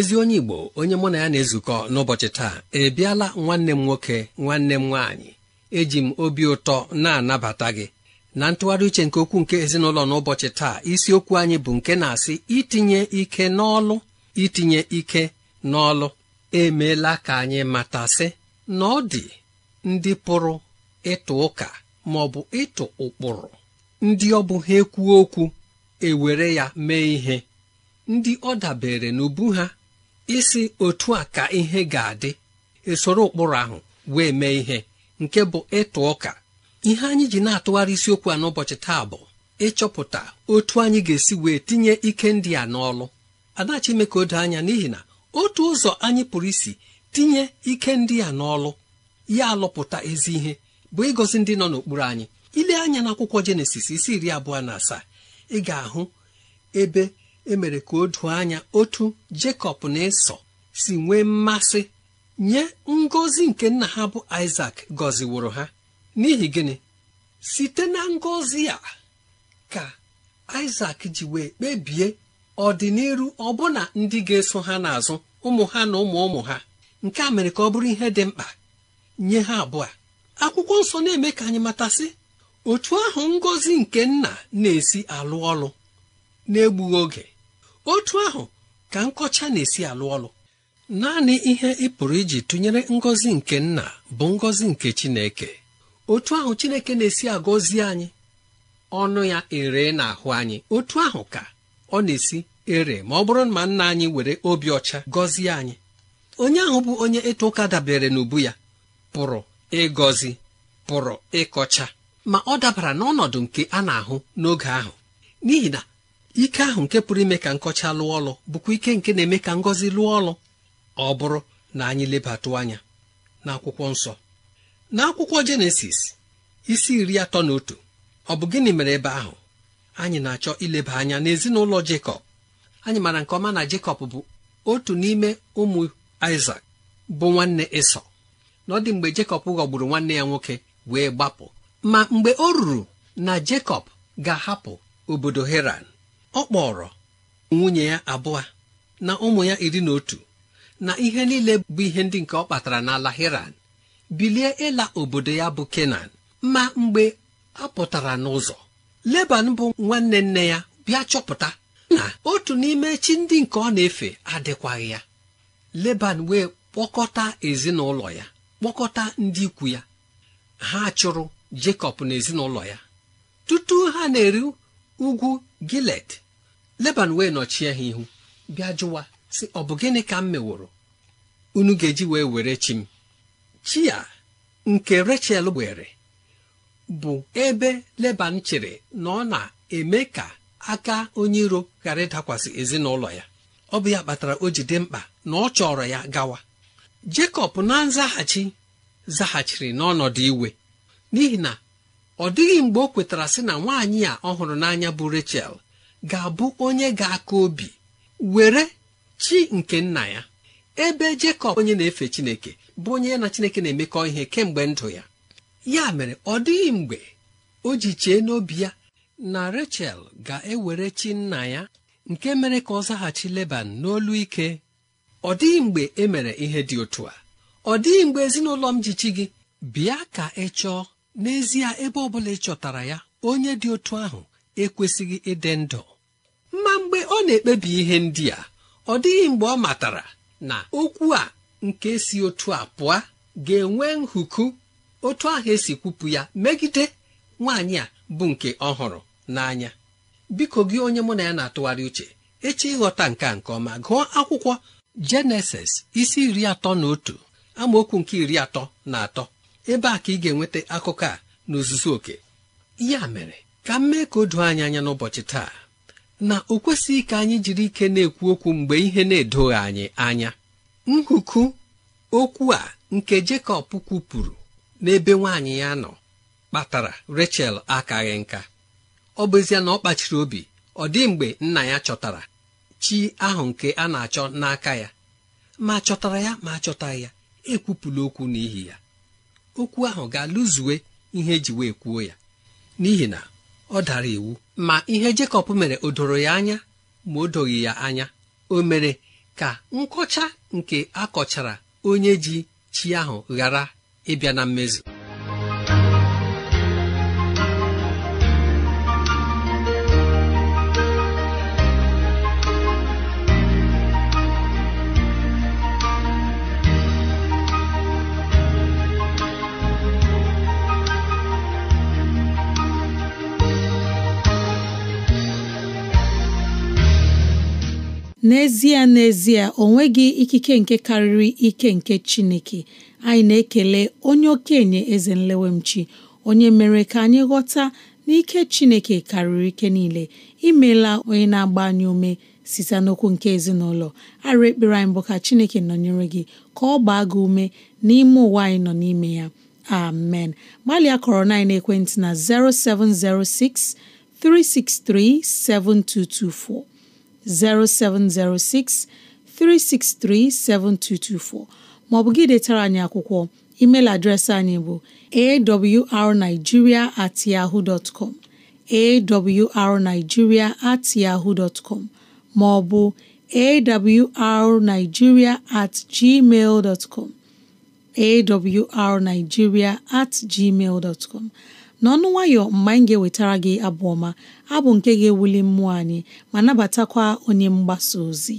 ezi onye igbo onye mụ na ya na-ezukọ n'ụbọchị taa ebiala nwanne m nwoke nwanne m nwaanyị eji m obi ụtọ na-anabata gị na ntụgharị uche nke okwu nke ezinụlọ n'ụbọchị taa isiokwu anyị bụ nke na-asị itinye ike n'ọlụ itinye ike n'ọlụ emeela ka anyị matasị na ọ dị ndị pụrụ ịtụ ụka ma ọ bụ ịtụ ụkpụrụ ndị ọ bụ ha ekwuo okwu ewere ya mee ihe ndị ọ dabere n'ubu ha isi otu a ka ihe ga-adị esoro ụkpụrụ ahụ wee mee ihe nke bụ ịtụ ụka ihe anyị ji na-atụgharị isiokwu a n'ụbọchị taa bụ ịchọpụta otu anyị ga-esi wee tinye ike ndị a n'ọlụ ime ka o doo anya n'ihi na otu ụzọ anyị pụrụ isi tinye ike ndị a n'ọlụ ya alụpụta ezi ihe bụ ịgọzi ndị nọ n'okpuru anyị ile anya n'akwụkwọ jenesis isi iri abụọ na asaa ị ga-ahụ ebe E mere ka o doo anya otu Jekọb na Ịsọ si nwee mmasị nye ngọzi nke nna ha bụ Isak gọziworo ha n'ihi gịnị site na ngọzi a ka Isak ji wee kpebie ọdịnihu ọbụna ndị ga-eso ha n'azụ ụmụ ha na ụmụ ụmụ ha nke a mere ka ọ bụrụ ihe dị mkpa nye ha abụọ akwụkwọ nsọ na-eme ka anyị matasị otu ahụ ngọzi nke nna na-esi alụ ọlụ na oge otu ahụ ka nkọcha na-esi alụ ọlụ naanị ihe ị pụrụ iji tụnyere ngọzi nke nna bụ ngọzi nke Chineke otu ahụ Chineke na-esi agọzi anyị ọnụ ya ere n'ahụ anyị otu ahụ ka ọ na-esi ere ma ọ bụrụ na nna anyị were obi ọcha gọzie anyị onye ahụ bụ onye ịta ụka dabere n'ubu ya pụrụ ịgọzi pụrụ ịkọcha ma ọ dabara n'ọnọdụ nke a na-ahụ n'oge ahụ n'ihi na ike ahụ nke pụrụ ime ka nkọcha lụọ ọlụ bụkwa ike nke na-eme ka ngọzi lụọ ọlụ ọ bụrụ na anyị lebatụ anya n'akwụkwọ nsọ n'akwụkwọ jenesis isi iri atọ na otu ọ bụ gịnị mere ebe ahụ anyị na-achọ ileba anya n'ezinụlọ Jekọb anyị maara nke ọma na Jekọb bụ otu n'ime ụmụ Isak bụ nwanne Ịsọ na ọ dị mgbe Jekọb ghọgburu nwanne ya nwoke wee gbapụ ma mgbe o ruru na Jekọb ga-ahapụ obodo Heran ọ kpọrọ nwunye ya abụọ na ụmụ ya iri na otu na ihe niile bụ ihe ndị nke ọ kpatara n'ala Hiran bilie ịla obodo ya bụ Kenan ma mgbe a pụtara n'ụzọ Leban bụ nwanne nne ya bịa chọpụta na otu n'ime chi ndị nke ọ na-efe adịkwaghị ya Leban wee kpọkọta ezinụlọ ya kpọkọta ndị ikwu ya ha chụrụ Jekọb na ya tutu ha na-eri ugwu gilet leban wee nọchie ha ihu bịa jụwa sị ọ bụ gịnị ka m meworo unu ga-eji wee were chi m chi ya nke rachel were bụ ebe leban chere na ọ na-eme ka aka onye iro ghara ịdakwasị ezinụlọ ya ọ bụ ya kpatara o ji dị mkpa na ọ chọrọ ya gawa jekọb na nzaghachi zaghachiri n'ọnọdụ iwe n'ihi na ọ dịghị mgbe o kwetara sị na nwaanyị a ọhụrụ n'anya bụ Rachel ga-abụ onye ga-aka obi were chi nke nna ya ebe Jekọb onye na-efe Chineke bụ onye na Chineke na-emekọ ihe kemgbe ndụ ya ya mere ọ dịghị mgbe o ji chee n'obi ya na Rachel ga-ewere chi nna ya nke mere ka ọ zaghachi Leban n'olu ike ọ dịghị mgbe e mere ihe dị otu a ọ dịghị mgbe ezinụlọ m ji chi gị bịa ka ị chọọ n'ezie ebe ọ bụla ị chọtara ya onye dị otu ahụ ekwesịghị ịdị ndụ ma mgbe ọ na-ekpebi ihe ndị a ọ dịghị mgbe ọ matara na okwu a nke si otu a pụọ ga-enwe nhuku otu ahụ esi kwupụ ya megide nwaanyị a bụ nke ọhụrụ n'anya biko gị onye mụ na ya na-atụgharị uche eche ịghọta nke a nke ọma gụọ akwụkwọ Jenesis isi iri atọ na otu amaokwu nke iri atọ na atọ ebe a ka ị ga-enweta akụkọ a na oke ya mere ka m mee ka o doo anyị anya n'ụbọchị taa na o kwesịghị ka anyị jiri ike na-ekwu okwu mgbe ihe na-edoghị anyị anya nhuku okwu a nke Jekọb kwupụrụ n'ebe nwaanyị ya nọ kpatara Rachel akaghị nka ọ bụ ezie na ọ kpachiri obi ọ dị mgbe nna ya chọtara chi ahụ nke a na-achọ n'aka ya ma chọtara ya ma achọtaghị ya ekwupụla okwu n'ihi ya okwu ahụ ga-alụzuwe ihe eji wee kwuo ya n'ihi na ọ dara iwu ma ihe Jekọb mere o doro ya anya ma o doghị ya anya o mere ka nkọcha nke akọchara onye ji chi ahụ ghara ịbịa na mmezu n'ezie n'ezie o nweghị ikike nke karịrị ike nke Chineke anyị na-ekele onye okenye eze nlewemchi onye mere ka anyị ghọta n'ike Chineke karịrị ike niile imela onye na-agba anyị ume site n'okwu nke ezinụlọ arụ ekpere anyị bụ ka Chineke nọnyere gị ka ọ gbaa gị ume n'ime ụwa anyị nọ n'ime ya amen gbalịa kọrọ na ekwentị na 0706 363 7224 0706 363 7224 maọbụ gị detara anyị akwụkwọ email adreesị anyị bụ awrnigeria at yahoo dot com awrnigeria at yahoo dot maọbụ awrnigeria at gmail dot com at gmail dot n'ọnụ nwayọ mgbe anyị ga-ewetara gị abụ ọma abụ nke ga-ewuli mmụọ anyị ma nabatakwa onye mgbasa ozi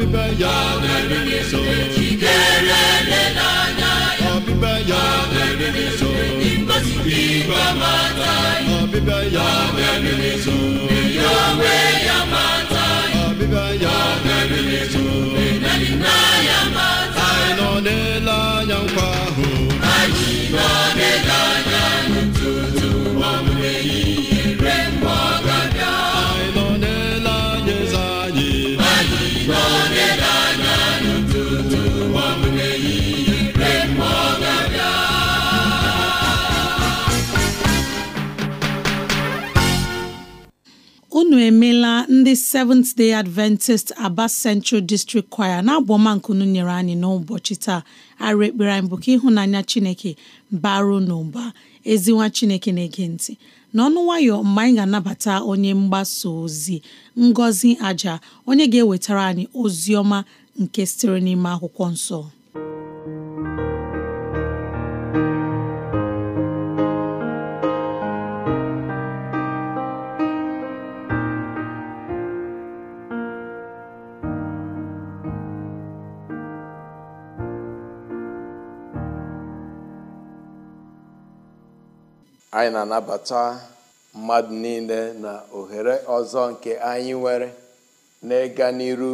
ọbịbịa ya na-eri nso na n'anya ya ọbịbịa ya na-eri nso igosipụ igwe mata ya ọbịbịa ya na-eri nso ya onwe ya mata ya ọbịbịa ya na-eri na ya mata anyị nọ n'ele anya nkwa ahụ anyị nọ n'ele anya ndị Seventh Day Adventist Aba Central District Choir na abụọma nkunu nyere anyị n'ụbọchị taa arụ ekpere anyị bụ ka ịhụnanya Chineke na n'ụba ezinwa Chineke na-ege ntị n'ọnụ nwayọ mgbe anyị ga-anabata onye mgbasa ozi Ngọzi Aja onye ga-ewetara anyị ozi nke sitere n'ime akwụkwọ nsọ anyị na-anabata mmadụ niile na ohere ọzọ nke anyị nwere n'ịga n'iru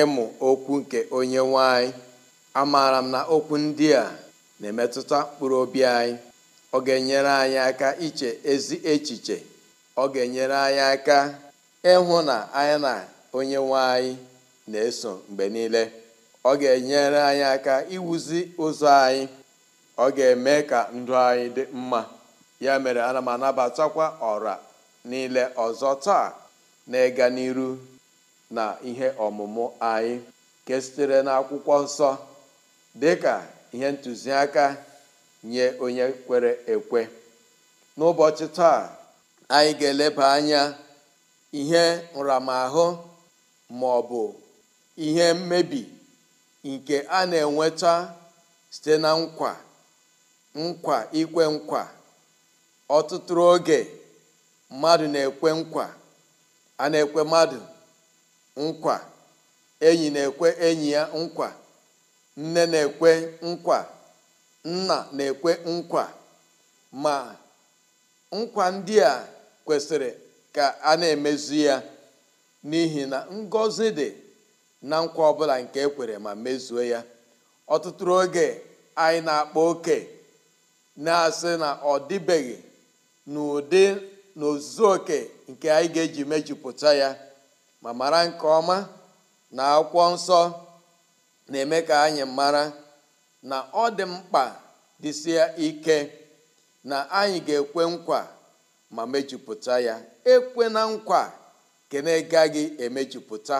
ịmụ okwu nke onye nwanyị anyị amaara m na okwu ndị a na-emetụta mkpụrụ obi anyị ọ ga-enyere anyị aka iche ezi echiche ọ ga-enyere anyị aka ịhụ na anyị na onye nwanyị na-eso mgbe niile ọ ga-enyere anyị aka iwuzi ụzọ anyị ọ ga-eme ka ndụ anyị dị mma ya mere ana m anabatakwa ọra niile ọzọ taa na-ịga n'iru na ihe ọmụmụ anyị nke sitere n'akwụkwọ nsọ dịka ihe ntụziaka nye onye kwere ekwe n'ụbọchị taa anyị ga-eleba anya ihe nramahụ ma ọ bụ ihe mmebi nke a na-enweta site na nkwa nkwa ikwe nkwa ọtụtụ oge mmadụ na-ekwe nkwa a na-ekwe mmadụ nkwa enyi na-ekwe enyi ya nkwa nne na-ekwe nkwa nna na-ekwe nkwa ma nkwa ndị a kwesịrị ka a na-emezu ya n'ihi na ngọzi dị na nkwa ọbụla nke ekwere ma mezuo ya ọtụtụ oge anyị na-akpa oke na-asị na ọ dịbeghị n'ụdị na oke nke anyị ga-eji mejupụta ya ma mara nke ọma na akwụkwọ nsọ na-eme ka anyị mara na ọ dị mkpa dịsịa ike na anyị ga-ekwe nkwa ma mejupụta ya ekwe na nkwa nke na-agaghị emejupụta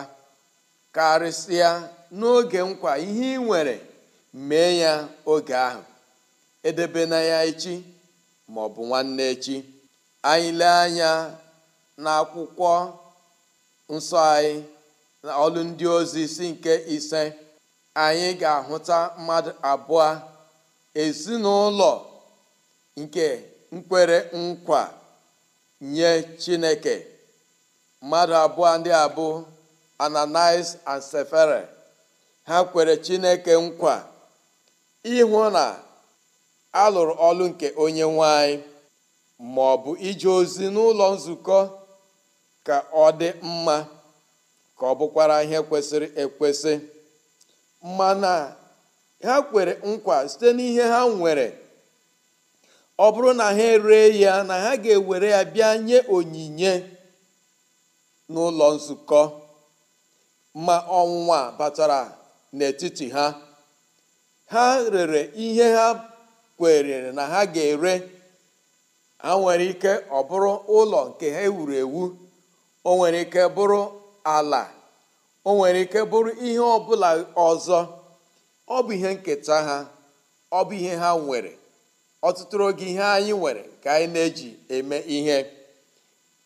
karịsịa n'oge nkwa ihe ị nwere mee ya oge ahụ edebe na ya echi ma bụ nwanne echi anyị lee anya n'akwụkwọ nsọ anyị na ọlụ ndị ozi isi nke ise anyị ga-ahụta mmadụ abụọ ezinụlọ nke nkwere nkwa nye Chineke mmadụ abụọ ndị abụ ananis and Sefere ha kwere Chineke nkwa ịhụ na a lụrụ ọlụ nke onye nwanyị ma ọ bụ ije ozi n'ụlọ nzukọ ka ọ dị mma ka ọ bụkwara ihe kwesịrị ekwesị mana ha kwere nkwa site n'ihe ha nwere ọ bụrụ na ha ree ya na ha ga-ewere ya bịa nye onyinye n'ụlọ nzukọ ma ọnwụnwa batara n'etiti ha ha rere ihe ha kwerere na ha ga-ere ha nwere ike ọ bụrụ ụlọ nke ha ewuru ewu o nwere ike bụrụ ala o nwere ike bụrụ ihe ọ bụla ọzọ ọ bụ ihe nketa ha ọ bụ ihe ha nwere ọtụtụ oge ihe anyị nwere ka anyị na-eji eme ihe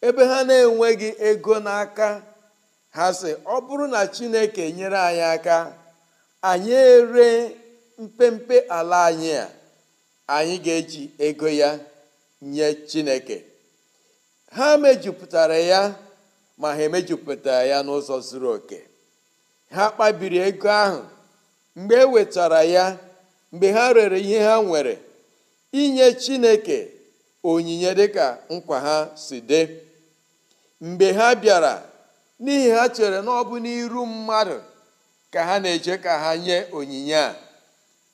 ebe ha na-enweghị ego n'aka ha sị ọ bụrụ na Chineke nyere anyị aka anyị ere mpempe ala anyị a anyị ga-eji ego ya nye chineke ha mejupụtara ya ma ha emejupụtara ya n'ụzọ zuru oke ha kpabiri ego ahụ mgbe e wetara ya mgbe ha rere ihe ha nwere inye chineke onyinye dịka nkwa ha si dị mgbe ha bịara n'ihi ha chere na ọ n'iru mmadụ ka ha na-eje ka ha nye onyinye a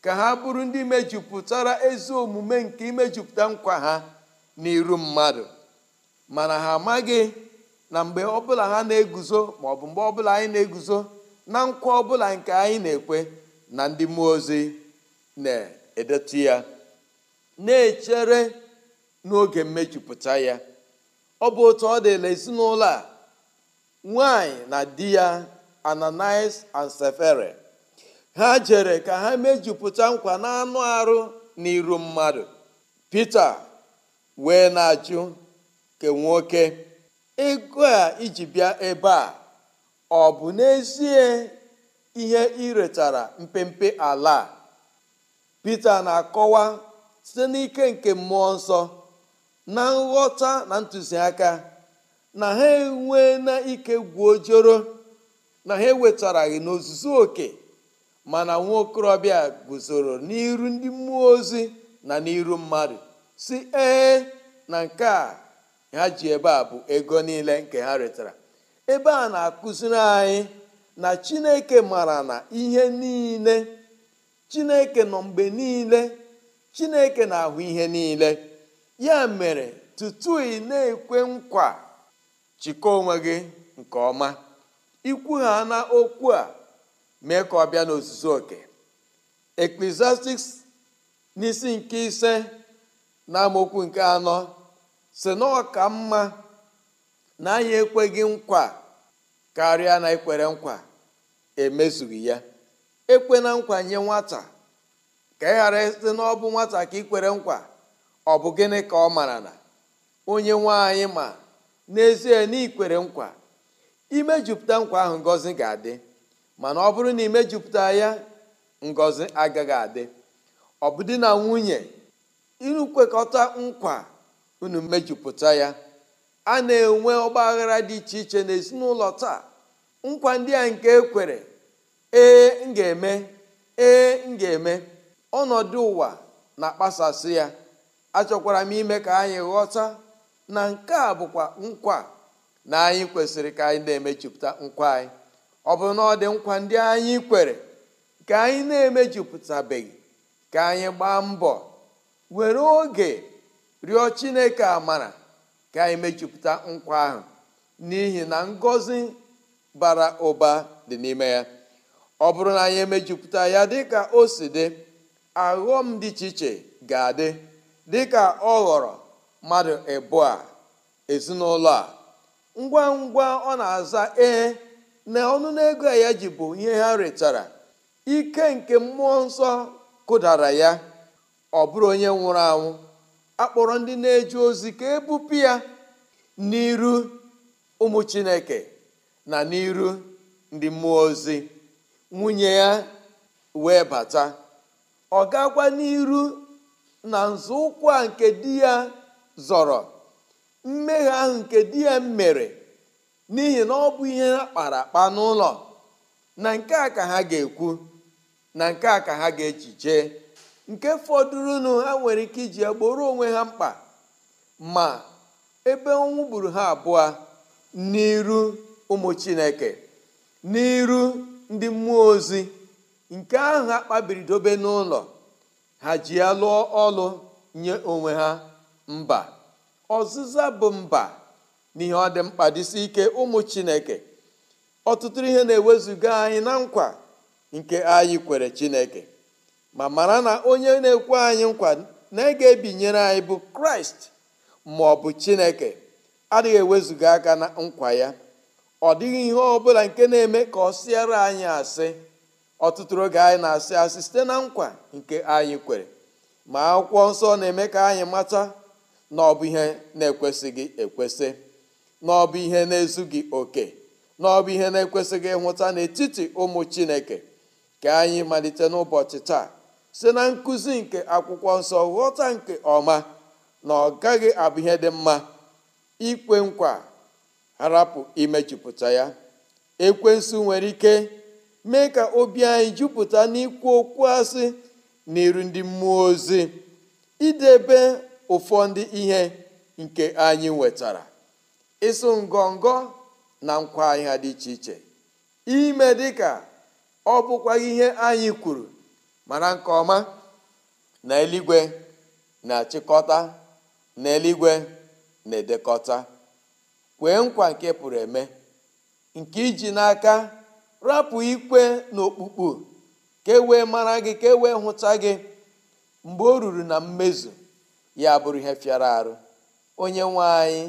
ka ha bụrụ ndị mejupụtara ezi omume nke imejupụta nkwa ha n'iru mmadụ mana ha amaghị na mgbe ọbụla ha na-eguzo ma ọ bụ mgbe ọbụla anyị na-eguzo na nkwa ọbụla nke anyị na-ekwe na ndị mmụọ ozi na-edetu ya na-echere n'oge mmejupụta ya ọ bụ otu ọ dịla ezinụlọ a nwanyị na di ya Ananias and Sefere ha jere ka ha mejupụta nkwa n'anụ arụ n'iru mmadụ Pita wee na-ajụ ke nwoke ego a iji bịa ebe a ọ bụ n'ezie ihe iretara mpempe ala Pita na-akọwa site n'ike nke mmụọ nsọ na nghọta na ntụziaka na ha enwe na ike gwuo joro na ha ewetaraghị n'ozuzu oke mana nwa okorobịa guzoro n'iru ndị mmụọ ozi na n'iru mmadụ si ee na nke a ha ji ebe a bụ ego niile nke ha retara ebe a na-akụziri anyị na chineke mara na ihe niile chineke nọ mgbe niile chineke na-ahụ ihe niile ya mere tutu ị na-ekwe nkwa chịkọ onwe gị nke ọma ikwugha na okwu a mee ka ọ bịa n'ozuzu oke eklesiastiks n'isi nke ise na nke anọ si na ka mma na anyị ekweghị nkwa karịa na ikwere nkwa emezughị ya ekwe na nkwa nye nwata ka ị ghara site na ọ bụ nwata ka ikwere nkwa ọ bụ gịnị ka ọ mara na onye nwe anyị ma n'ezie na ikwere nkwa imejupụta nkwa ahụ ngọzi ga-adị mana ọ bụrụ na imejupụta ya ngozi agaghị adị ọ bụ di na nwunye inu nkwa unu mejupụta ya a na-enwe ọgbaghara dị iche iche n'ezinụlọ taa nkwa ndị a nke ekwere ee m ga-eme ee m eme ọnọdụ ụwa na-akpasasị ya achọkwara m ime ka anyị ghọta na nke a bụkwa nkwa na anyị kwesịrị ka anyị na-emejupụta nkwa anyị ọ bụrụ na ọ dị nkwa ndị anyị kwere ka anyị na-emejupụtabeghị ka anyị gbaa mbọ were oge rịọ chineke amara ka anyị mejupụta nkwa ahụ n'ihi na ngọzi bara ụba dị n'ime ya ọ bụrụ na anyị emejupụta ya dịka o si dị aghọm dị iche iche ga-adị dị ka ọ ghọrọ mmadụ ịbụọ ezinụlọ a ngwa ngwa ọ na-aza ee na a ya ji bụ ihe ha retara ike nke mmụọ nsọ kụdara ya ọ bụrụ onye nwụrụ anwụ akpọrọ ndị na-eje ozi ka ebupụ ya n'iru ụmụ chineke na n'iru ndị mmụọ ozi nwunye ya wee bata ọ gakwa n'iru na nzọụkwụ a nke di ya zọrọ mmehie ahụ nke di ya mere n'ihi na ọ bụ ihe ha kpara akpa n'ụlọ na nke a ka ha ga-ekwu na nke a ka ha ga-echiche nke fọdụrụnụ ha nwere ike iji gboro onwe ha mkpa ma ebe ọnwụ gburu ha abụọ n'iru ụmụ chineke n'iru ndị mmụọ ozi nke ahụ ha dobe n'ụlọ ha ji ya lụọ ọlụ nye onwe ha mba ọzịza bụ mba n'ihe ọ dị mkpa dịsi ike ụmụ chineke ọtụtụ ihe na-ewezuga anyị na nkwa nke anyị kwere chineke ma mara na onye na-ekwe anyị nkwa na ege ebinyere anyị bụ kraịst ma ọ bụ chineke adịghị ewezuga aka na nkwa ya ọ dịghị ihe ọ bụla nke na-eme ka ọ sịara anyị asị ọtụtụ oge anyị na-asị asị site na nkwa nke anyị kwere ma akwụkwọ nsọ na-eme ka anyị mata na ọ bụ ihe na-ekwesịghị ekwesị na ọ bụ ihe na-ezughị oke na ọ bụ ihe na-ekwesịghị ịhụta n'etiti ụmụ chineke ka anyị malite n'ụbọchị taa si na nkụzi nke akwụkwọ nsọ ghọta nke ọma na ọ gaghị abụ ihe dị mma ikwe nkwa harapụ imejupụta ya ekwensu nwere ike mee ka obi anyị jupụta n'ikwu okwu asị n'iru ndị mmụọ ozi idebe ụfọdụ ihe nke anyị nwetara ịsụ ngọngọ na nkwa ahịa dị iche iche ime dịka ọ bụkwa ihe anyị kwuru mara nke ọma na eluigwe na-achịkọta na eluigwe na-edekọta kwee nkwa nke pụrụ eme nke iji n'aka rapụ ikwe na okpukpu ka e wee mara gị ka e wee hụta gị mgbe o ruru na mmezu ya bụrụ ihe fịara arụ onye nwe anyị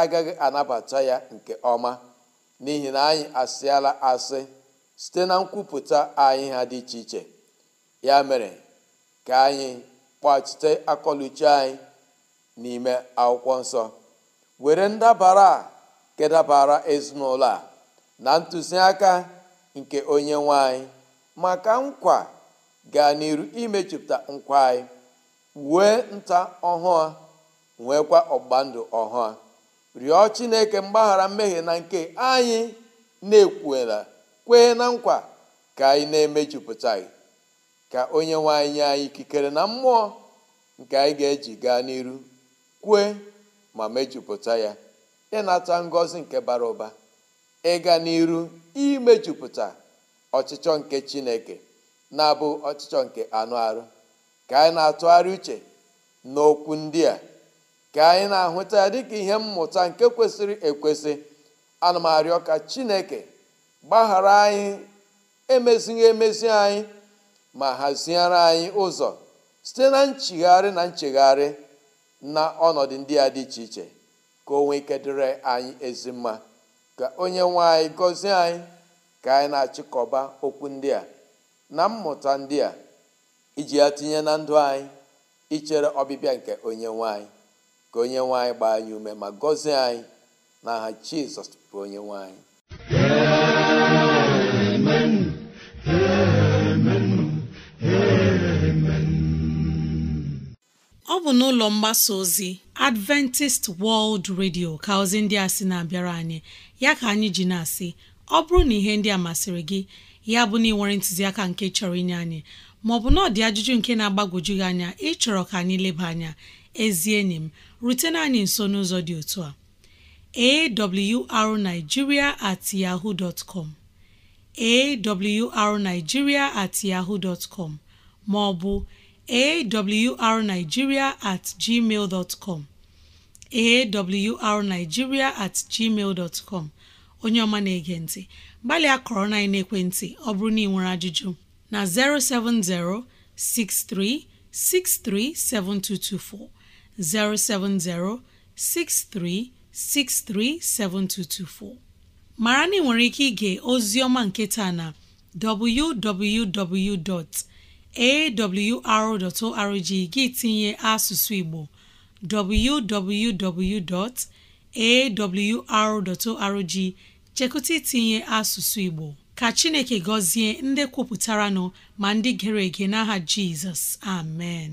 agaghị anabata ya nke ọma n'ihi na anyị asịala asị site na nkwupụta anyị ha dị iche iche ya mere ka anyị kpachite akọluchi anyị n'ime akwụkwọ nsọ were ndabara a kedabara ezinụlọ a na ntụziaka nke onye nwanyị maka nkwa gaa n'iru imechipụta nkwa anyị wee nta ọhụụ nwekwa ọgbandụ ọhụụ rịọ chineke mgbaghara mmehie na nke anyị na-ekwuela kwee na nkwa ka anyị na-emejupụta ya ka onye nwe anyị nye anyị ikikere na mmụọ nke anyị ga-eji gaa n'iru kwue ma mejupụta ya ịnata ngọzi nke bara ụba ịga n'iru imejupụta ọchịchọ nke chineke na-abụ ọchịchọ nke anụ arụ ka anyị na-atụgharị uche n'okwu ndị a ka anyị na-ahụta ya dịka ihe mmụta nke kwesịrị ekwesị ana m arịọ ka chineke gbaghara anyị emezighị emezi anyị ma haziere anyị ụzọ site na nchigharị na nchegharị na ọnọdụ ndị a dị iche iche ka o nwee ike dịrị anyị ezi mma ka onye nwe anyị gọzie anyị ka anyị na-achịkọba okwu ndị a na mmụta ndị a iji ya tinye na ndụ anyị ichere ọbịbịa nke onye nwe anyị ka onye nwanyị gbaa anyị ume ma gọzie anyị n'aha jizọs bụ onye nwanyị ọ bụ n'ụlọ mgbasa ozi adventist world radio ka ozi ndị a sị na-abịara anyị ya ka anyị ji na-asị ọ bụrụ na ihe ndị a masịrị gị ya bụ na ị nwere ntụziaka nke chọrọ inye anyị maọbụ na ọ dị ajụjụ nke na-agbagwoju gị anya ịchọrọ ka anyị leba anya ezi enyi m rutena anyị nso n'ụzọ dị otu a awrnigeria at at maọbụ ma ọ bụ at gmail at gmail onye ọma na-ege ntị gbalịa na ekwentị ọ bụrụ na ị nwere ajụjụ na 070 63 7224 070 mara na ị nwere ike ige ozi ọma nke na www.awr.org gị tinye asụsụ Igbo www.awr.org chekụta itinye asụsụ Igbo ka Chineke gọzie ndị kwupụtara nọ ma ndị gere ege n'aha Jizọs amen